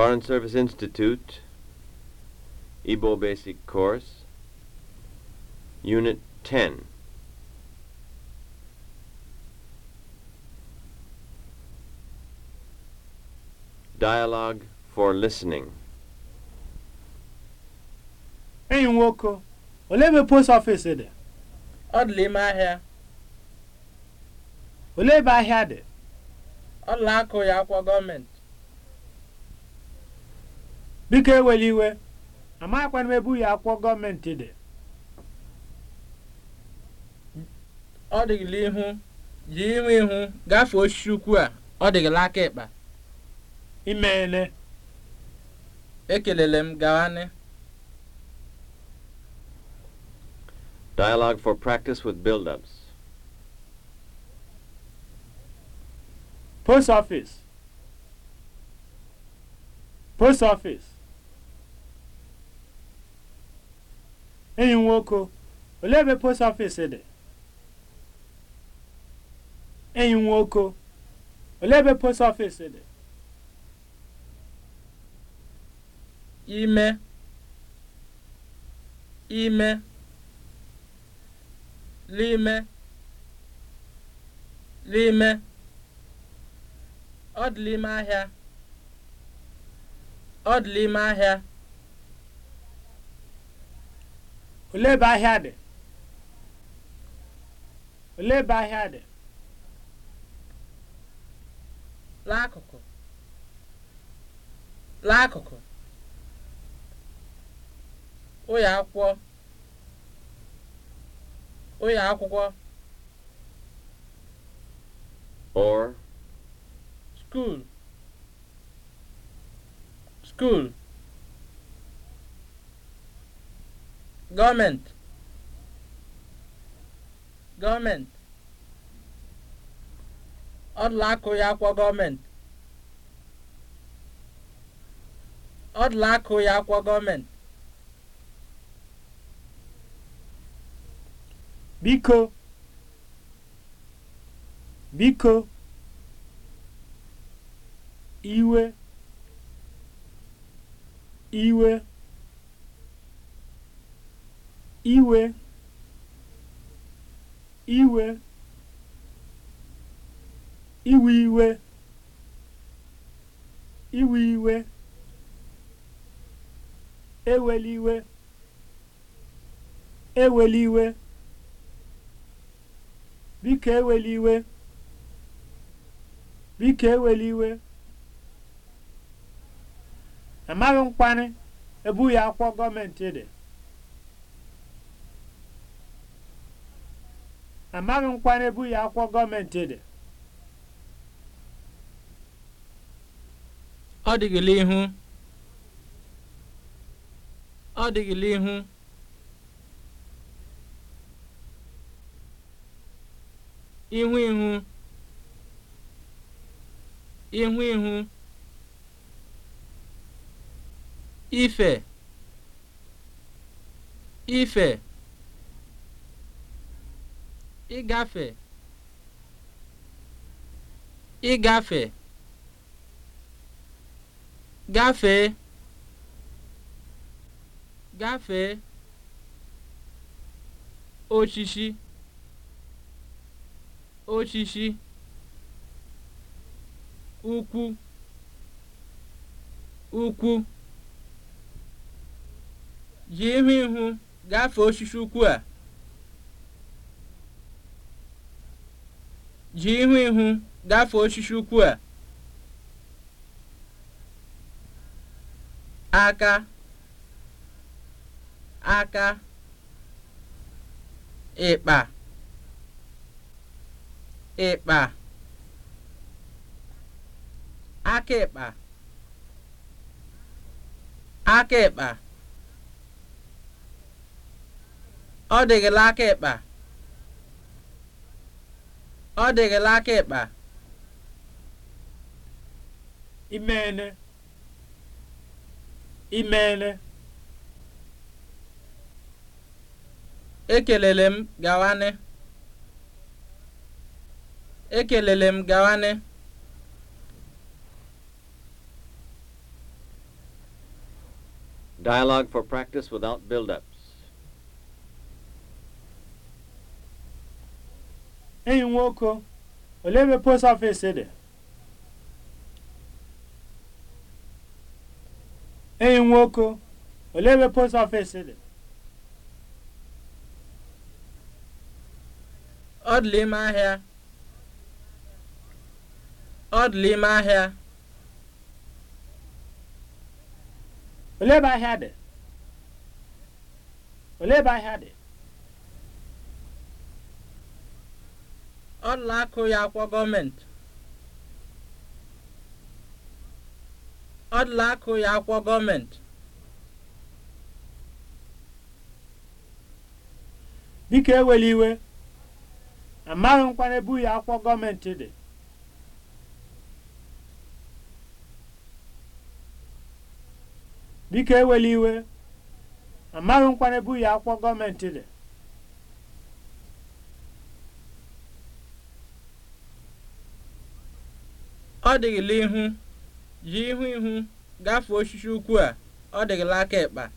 Foreign Service Institute, Igbo Basic Course, Unit 10. Dialogue for Listening. Enyi nwoke, ole ebe post office dị? Ọ dị n'ime ahịa. Ole ebe ahịa dị? Ọla akụ ya akwụkwọ gọọmenti. biko ewela iwe amaghịkwana m ebe ya akwụkwọ gọọmenti dị ọ dịghịla ihu ji ime ihu gafee osisi ukwu a ọ dịghịla aka ịkpa imeele ekelele m gawanị Dialogue for practice with build-ups. Post office. Post office. enyi nwoke olee ebe post ọfịs dị enyi nwoke olee ebe post ọfịs dị ime ime n'ime n'ime ọ dị n'ime ahịa ọ dị ahịa olee ebe ahịa dị olee ebe ahịa dị n'akụkụ n'akụkụ ụyọ akwụkwọ ụyọ akwụkwọ or school school government ọdụla akụ ya akwọ gọọmenti biko biko iwe iwe iwe iwe iwe iwe iwe iwe eweliwe eweliwe biko eweliwe biko eweliwe amaghị nkwanye ebughị akwụkwọ gọọmenti dị amaghị nkwa n'ebu ya akwụkwọ gọọmenti dị ọ dịgịla ihu ọ dịgịla ihu ihu ihu ihu ihu ife ife ịgafe ịgafe gafee gafee osisi osisi ukwu ukwu jiri ihu ihu gafee osisi ukwu a ji ihu ihu gafee osisi ukwu a aka aka ịkpa ịkpa aka ịkpa aka ịkpa ọ dịghịla aka ịkpa Ọ dịrịla aka ịkpa. Imeene. Imeene. Ekelele m gawanị. Ekelele m gawanị. Dialogue for practice without build-up. enyi nwoke olee ebe post office dị enyi nwoke olee ahịa ọdụlụ ahịa olee ebe ahịa ahịa dị ọlaakụ ya akwọ ya akwọ gọọmenti biko ewela iwe amaghị nkwanye ebu ya akwọ gọọmenti dị ewela iwe amaghị ya akwọ gọọmenti dị ọ dịghịla ihu ji ihu ihu gafee osisi ukwu a ọ dịghịla aka ịkpa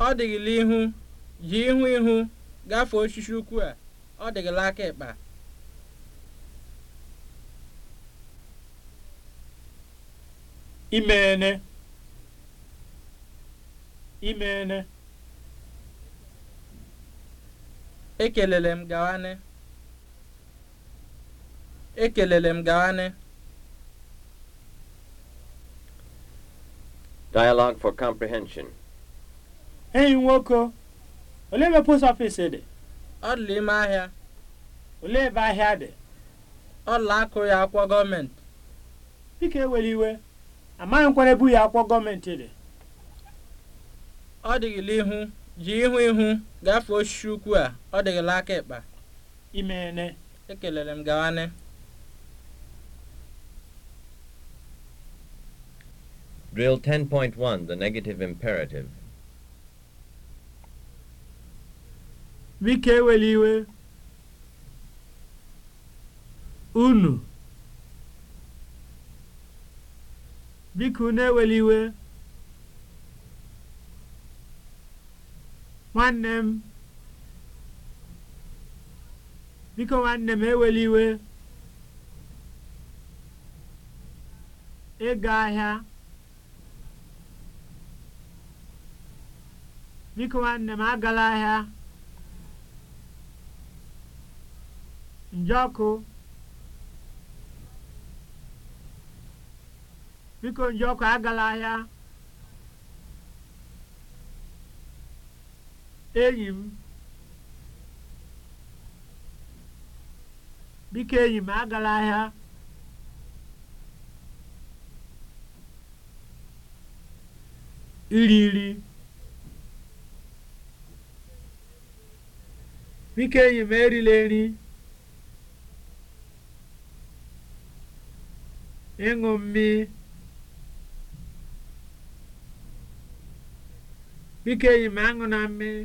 ọ dịghịla imeene Ekelele m gawanụ. Ekelele m gawanụ. Dialogue for comprehension. Enyi nwoke, olee ebe post office dị? Ọ dị ime ahịa. Olee ebe ahịa dị? Ọla akụ ya akwụkwọ gọọmenti. Biko ewere iwe, amaghị nkwara ebu ya akwụkwọ gọọmenti dị. Ọ dịghịla ihu. ji ihu ihu gafee osisi ukwu a ọ dịghịla aka ịkpa imeene ekelere m gawane Drill 10.1, the negative imperative. Biko ewela iwe. Unu. Biko unu iwe. nwanne m biko nwanne m ewela iwe ịga ahịa biko nwanne m agala ahịa njọkụ biko njọkụ agala ahịa enyi m biko enyi m agala ahịa iri nri biko enyi m erila nri ịṅụ mmiri biko enyi m aṅụ na mmiri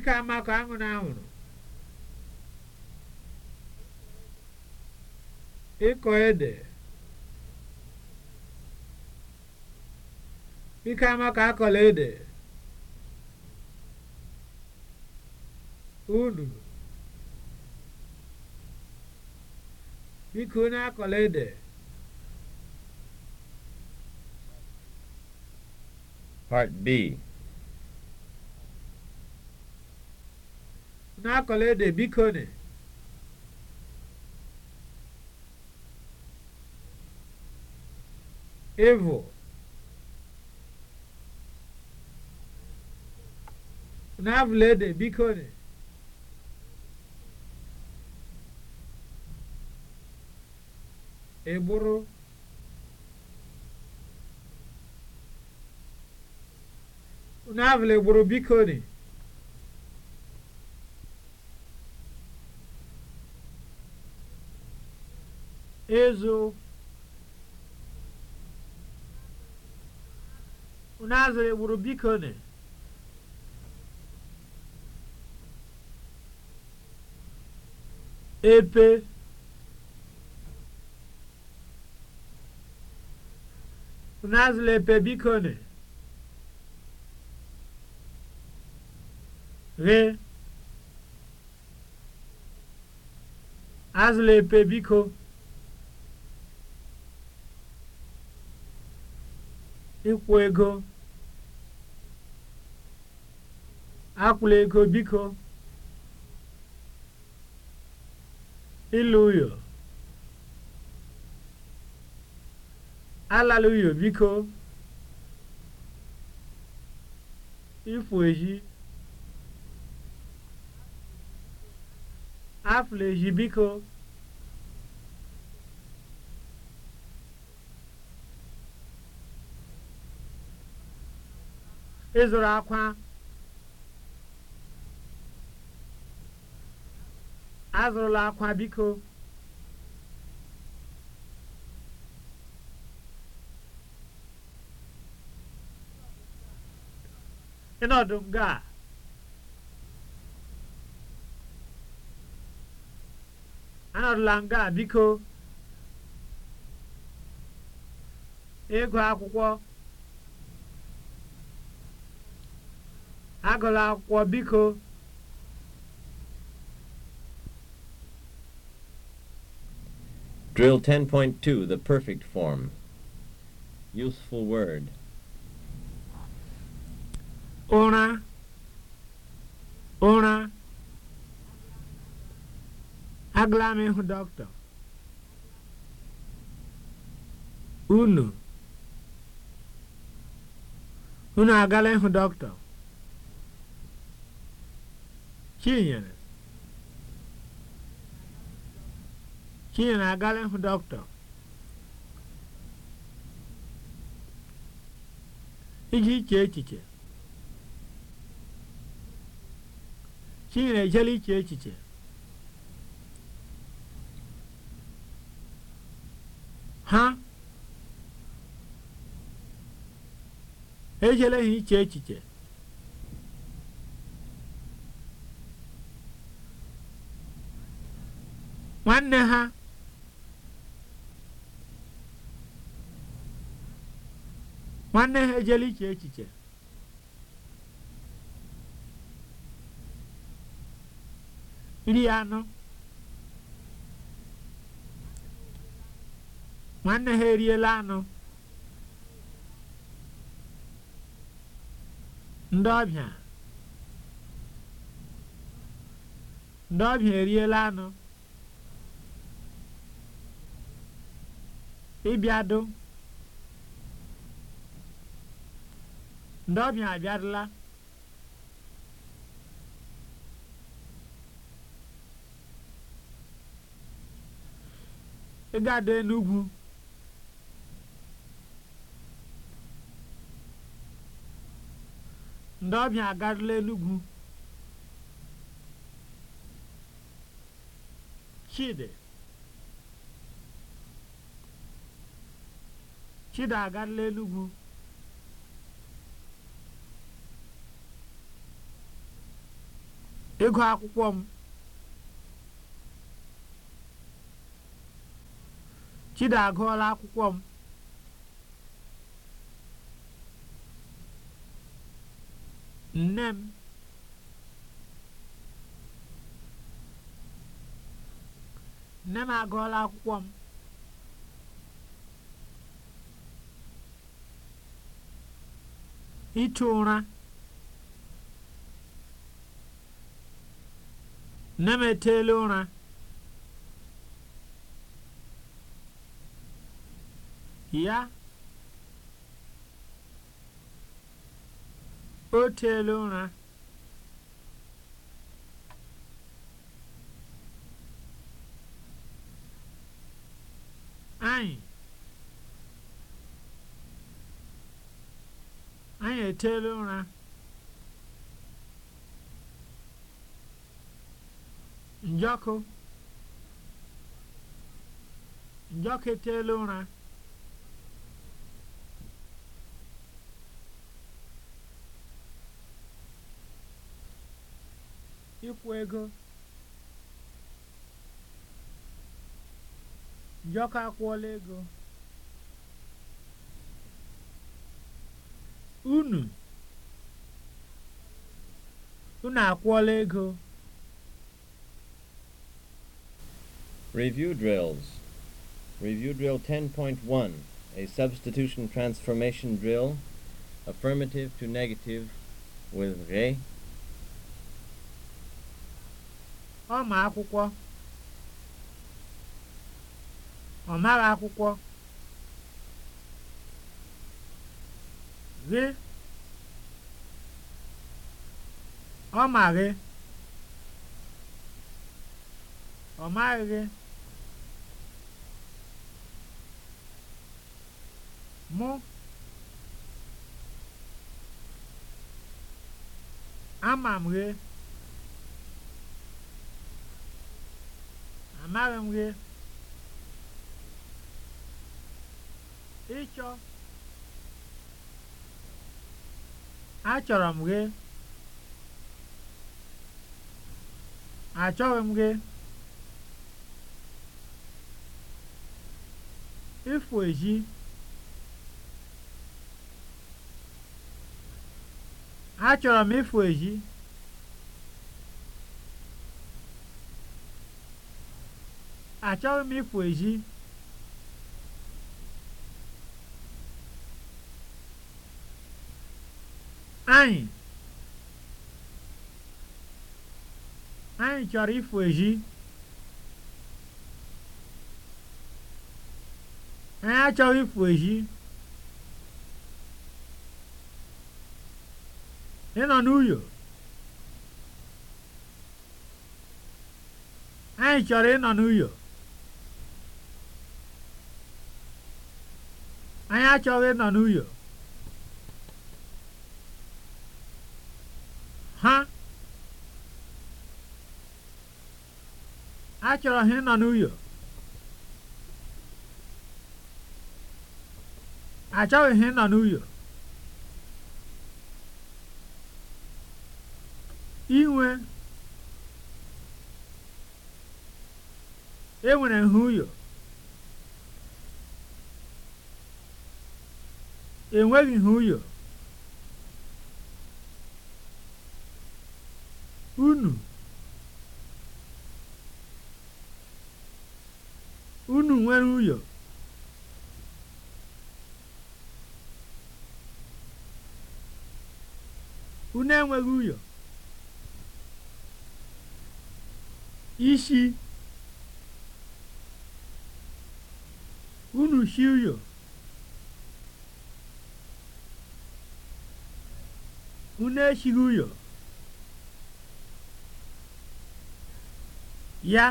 వికామ కామునామును ịkọ ede ike ama akọla ede unu biko onye akọla ede Part B n'akọla ede biko nị ịvụ n'avụla ede biko nị ịbụrụ n'avụla egburu biko nị Ezo. Unazere egburu biko ne. Epe. Unazere epe biko ne. Re. Azụla epe biko. ịkwụ ego akwụla ego biko ịlụ uyo alala uyo biko ifu ehi afụla ehi biko ịzụrụ akwa azụrụla akwa biko ịnọdụ nga a anọdụla nga biko ịgụ akwụkwọ agụla akwụkwọ biko Drill 10.2 The Perfect Form Useful Word Ụra Ụra agụla m ịhụ dọkịta unu unu agala ịhụ dọkịta Chinyere. Chinyere agala hụ dọkịta. Iji iche echiche. Chinyere ejela iche echiche. Ha ejela ha iche echiche. nwanne ha nwanne ha ejela iche echiche nri anụ nwanne ha eriela anụ ndị ọbịa ndị ọbịa eriela anụ ịbịadụ ndị ọbịa abịadụla ịgado Enugwu ndị ọbịa agarụla Enugwu Chidi Chida agarala enugwu ego akwụkwọ m chida agụọla akwụkwọ m nne m nne m agụọla akwụkwọ m ichu ụra nne m eteela ụra ya o teela ụra echere ụra njọkụ njọkụ etela ụra ịkwụ ego njọkụ akwụọla ego unu unu akwụọla ego Review drills. Review drill 10.1, a substitution transformation drill, affirmative to negative with re. Ọ akwụkwọ. Ọ mara akwụkwọ. gị ọ ma gị ọ maghị gị mụ ama m gị amaghị m gị ịchọ Achọrọ m gị. Achọghị m gị. Ịfụ ezi. Achọrọ m ịfụ ezi. Achọghị m ịfụ ezi. anyị anyị chọrọ ịfụ eji anyị achọghị ịfụ eji ị nọ n'uyo anyị chọrọ ịnọ n'uyo anyị achọghị ịnọ n'uyo achọrọ ha ịnọ n'uyo achọghị ha ịnọ n'uyo inwe enwere ha uyo enweghị ha uyo unu nwere uyo, unu enweghị ụyọ ishi unu shi uyo, unu eshighị ụyọ ya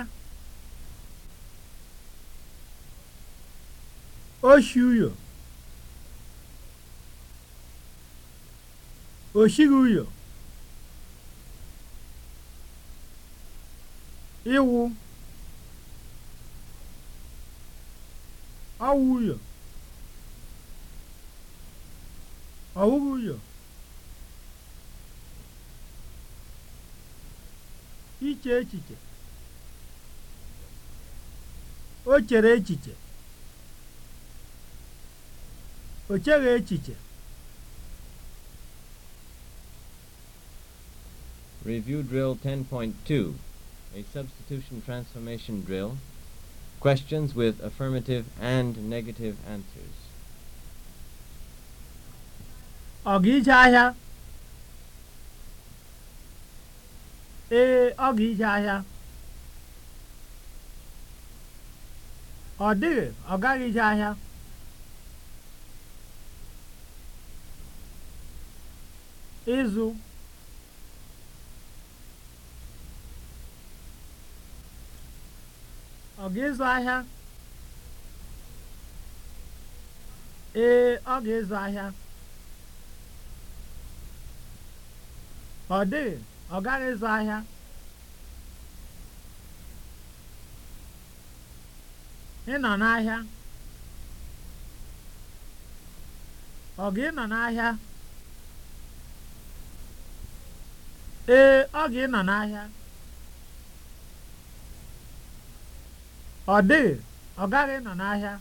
oshi uyo oshighị uyo iwu, awụ uyo iche echiche o chere echiche o cheghị echiche Review Drill 10.2, a substitution transformation drill. Questions with affirmative and negative answers. Ọ ga ije ahịa? Ee, ọ ga ije ahịa. Ọ dịghị, ọ gaghị ije ahịa. ịzụ ọ ga-ịzụ ahịa ee ọ ga-ịzụ ahịa ọ dịghị ọ gaghị ịzụ ahịa ị nọ n'ahịa ọ ga ị nọ n'ahịa ee ọ ga-ịnọ n'ahịa ọ dịghị ọ gaghị ịnọ n'ahịa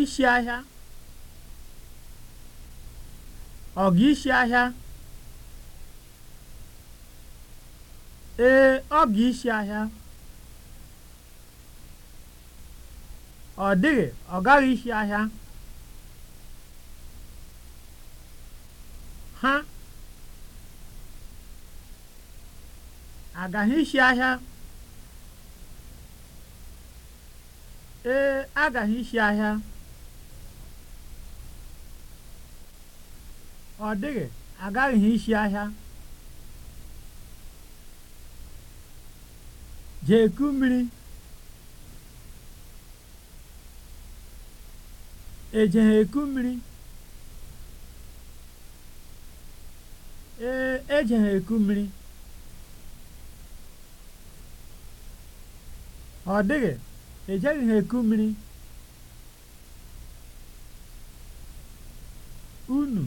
isi ahịa ọ ga isi ahịa ee ọ ga isi ahịa ọ dịghị ọ gaghị isi ahịa agaghị isi ahịa ee agaghị isi ahịa ọ dịghị agaghị isi ahịa jeku mmiri ejegha eku mmiri ee ejegha eku mmiri ọ dịghị ejeghị ha eku mmiri unu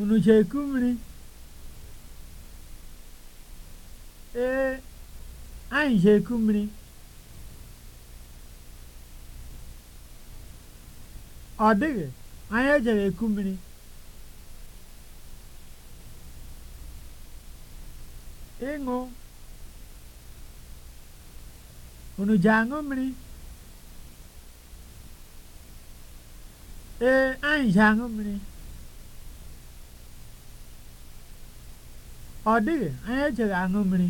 unu ji eku mmiri ee anyị ji eku mmiri ọ dịghị anyị ejere eku mmiri ịṅụ e Unu ji aṅụ Ee, anyị ji aṅụ Ọ dịghị, anyị ejighị aṅụmmiri,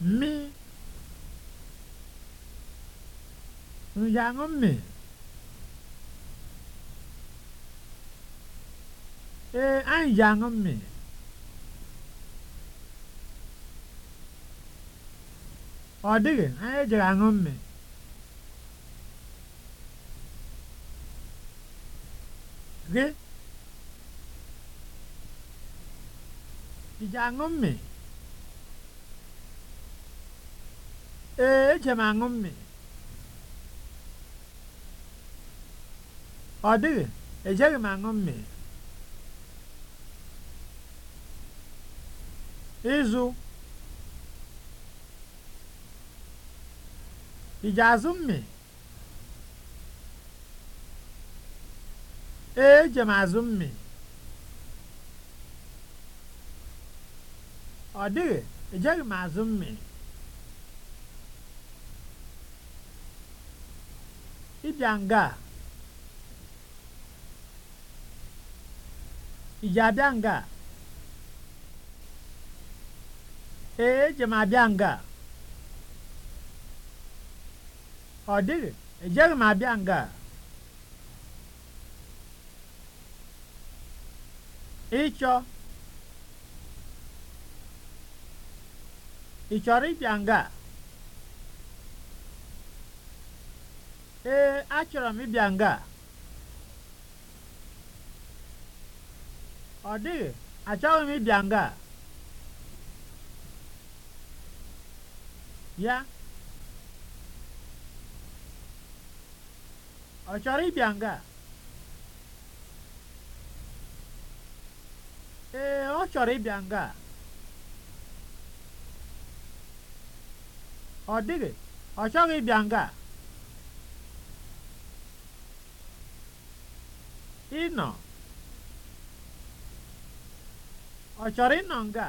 mmiri. Mmi. Unu ji aṅụ Ee, anyị ji aṅụ ọ dịghị anyị jere aṅụ mmiri gị ị ji aṅụ mmiri ee eje m aṅụ mmiri ọ dịghị ejeghị m aṅụ mmiri ịzụ Ijazi ummi? Ee, eje m azụ Ọ dịghị, ejeghị m azụ Ịbịa nga a? abịa nga Ee, eje m abịa nga a. ọ dịghị ejeghị m abịa nga ịchọ ị chọrọ ịbịa nga a ee achọrọ m ịbịa nga ọ dịghị achọghị m ịbịa nga ya Ọ chọrọ ịbịa nga? Ee, ọ chọrọ ịbịa nga. Ọ dịghị, ọ chọghị ịbịa nga. Ịnọ. Ọ chọrọ nọ nga?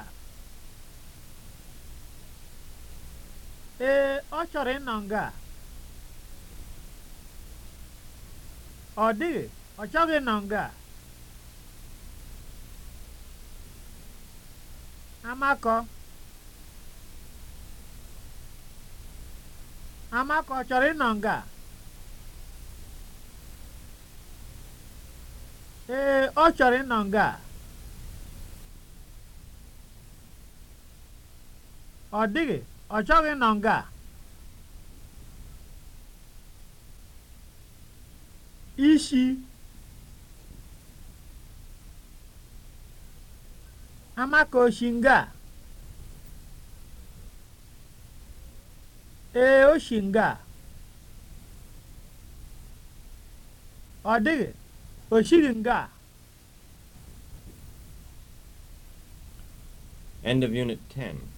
Ee, ọ chọrọ nọ nga. Ọ dịghị, ọ chọghị nọ nga Amakọ. Amakọ ọ chọrọ ịnọ nga a? Ee, ọ chọrọ ịnọ nga a. Ọ dịghị, ọ chọghị nọ nga a. ishi amakoshinga ee oshinga ọ dịghị oshiri nga End of Unit 10.